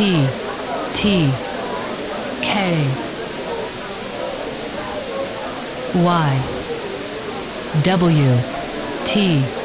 T T K Y W T